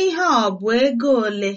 Ihe ọ bụ ego ole?